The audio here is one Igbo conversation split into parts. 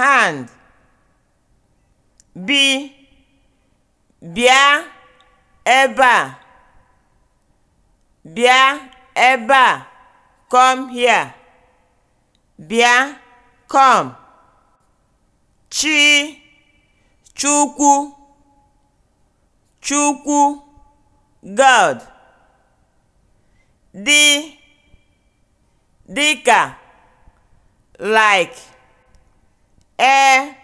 hand bi bịa ebe a bịa ebe a come here bịa come chi chukwu chukwu god dị dịka like e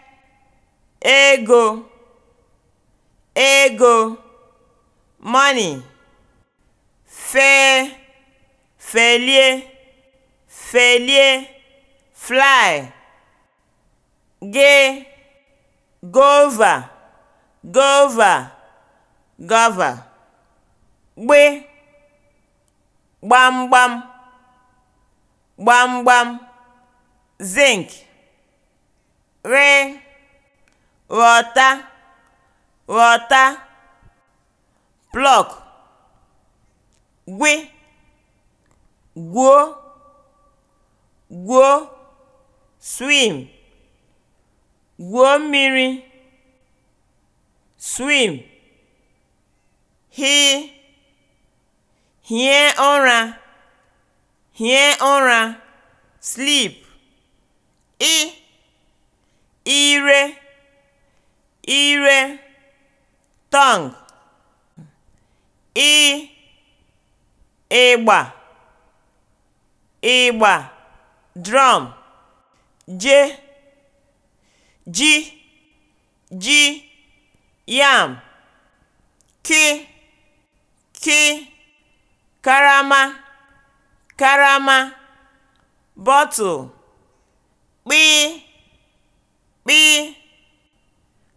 ego ego money fee felie felie fly gị gova gova gova gbe gbamgbam gbamgbam zinc /r/ ghọta ghọta plọk gwi gwuo gwuo swim gwuo mmiri swim hi hie ụra hie ụra sleep ị ire ire (tongue), ị (ịgba ịgba, je ji (ji yam), ki ki karama karama bottle, kpị 'kpị'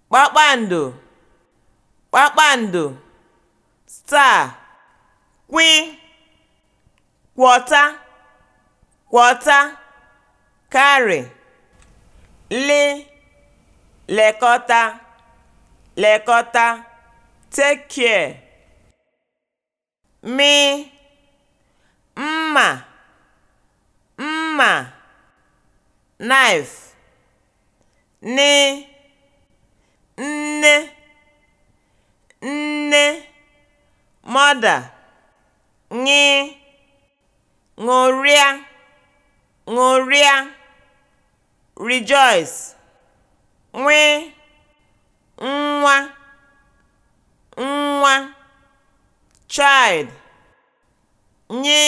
kpakpando kpakpando star 'kwị' kwọta kwọta carry li lekọta lekọta take care mi mma mma knife nne nne nne mother ñ ṅụrịa ṅụrịa rejoice nw nwa nwa child nye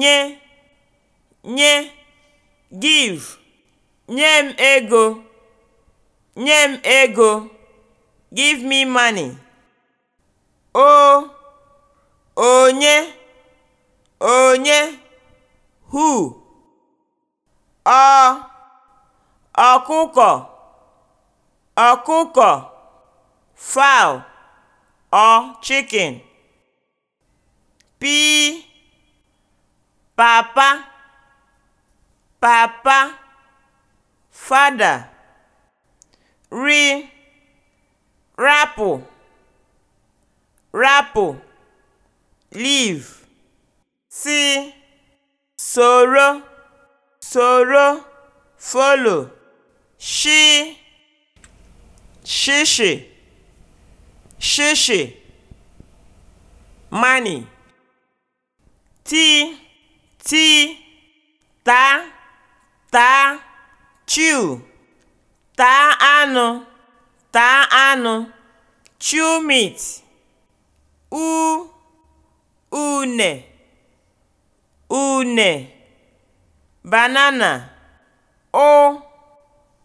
nye nye give Nye m ego. Nye m ego. (Give me money) O onye onye Who Ọ ọkụkọ ọkụkọ Fowl or chicken P papa papa fada ri rapụ rapụ liv si soro soro folo shi shishi shishi money ti ti ta ta Chew: taa anụ, taa anụ. Chew meat. U une, une. Banana. Ụ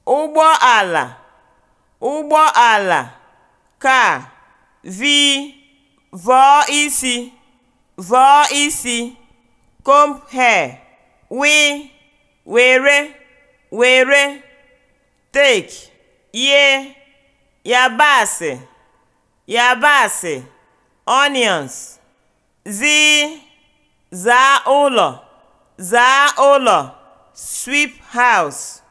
ụgbọala, ala Car: v vọọ isi, vọọ isi. Comb hair. W were were tek ghee yabasị yabasị (onions), zi (zaa ụlọ zaa ụlọ sweep house)